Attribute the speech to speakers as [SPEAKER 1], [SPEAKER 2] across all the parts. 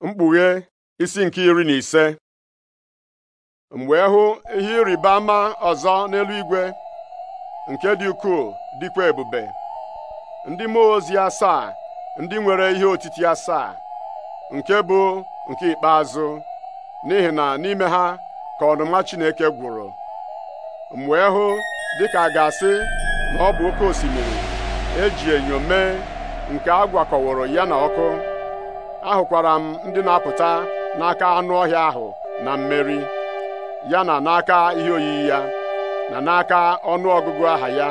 [SPEAKER 1] mkpughe isi nke iri na ise mgbe ehu hụ ihe ịrịba ama ọzọ n'eluigwe nke dị ukwuu dịkwa ebube ndị mmụọ ozi asaa ndị nwere ihe otiti asaa nke bụ nke ikpeazụ n'ihi na n'ime ha ka ọnụma Chineke gwụrụ mgbe ehu hụ dịka a ga-asị na ọ bụ oke osimiri eji enyo mee nke a gwakọworo ya na ọkụ ahụkwara m ndị na-apụta n'aka anụ ọhịa ahụ na mmeri ya na n'aka ihe oyiyi ya na n'aka ọnụ ọgụgụ aha ya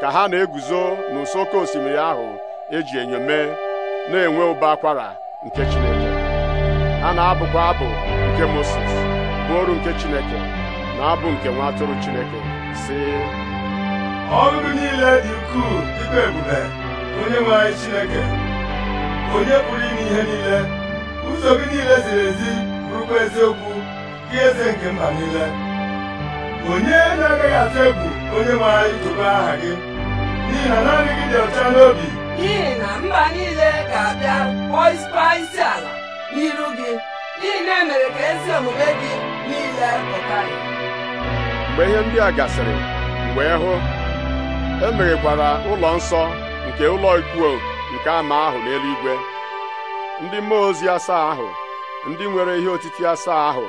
[SPEAKER 1] ka ha na-eguzo n'ụsọ oke osimiri ahụ eji enyome na-enwe ụba akwara nke Chineke ha na-abụkwa abụ nke Moses bụ nke Chineke na abụ nke nwa atụrụ Chineke si niile dị ukwuu
[SPEAKER 2] dịkwa ebube onye nwe Chineke onye pụrụ ime ihe niile ụzọ gị niile ziri ezi bụrụkwa eziokwu gị eze nke mba niile onye na-agaghị atụ egwu onye maara idobe aha gị n'ihi na naanị gị dị ọcha n'obi n'ihi na mba niile ga-abịa kpọọ isi ala n'iru gị n'ihi na emere ka ezi omume gị niile pụta
[SPEAKER 1] mgbe ihe ndị a gasịrị mgbe hụ emeghekwara ụlọ nsọ nke ụlọ ikwu nke ama ahụ n'eluigwe ndị mmụọ ozi asaa ahụ ndị nwere ihe otiti asaa ahụ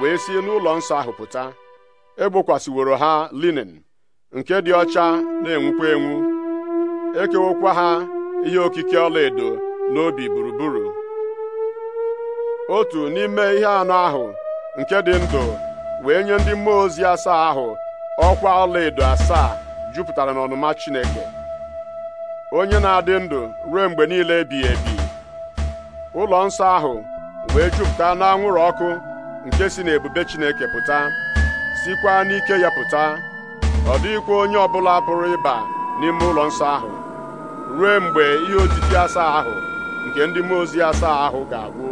[SPEAKER 1] wee si n'ụlọ nsọ ahụ pụta egbokwasịworo ha linin nke dị ọcha na-enwukwa enwu ekewokwa ha ihe okike ọlaedo n'obi gburugburu otu n'ime ihe anọ ahụ nke dị ndụ wee nye ndị mmụọ ozi asaa ahụ ọkwa ọlaedo asaa jupụtara n'ọnụma Chineke onye na-adị ndụ ruo mgbe niile ebighị ebi ụlọ nsọ ahụ wee jupụta n'anwụrụ ọkụ nke si n'ebube Chineke pụta sikwa n'ike ya pụta ọ dịghịkwa onye ọbụla pụrụ ịba n'ime ụlọ nsọ ahụ ruo mgbe ihe otiti asaa ahụ nke ndị mmụọ ozi asaa ahụ ga-agwụ